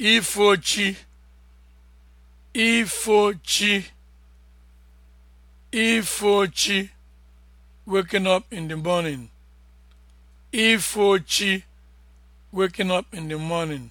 ifochi ifochi ifochi waking up in the morning ifochi waking up in the morning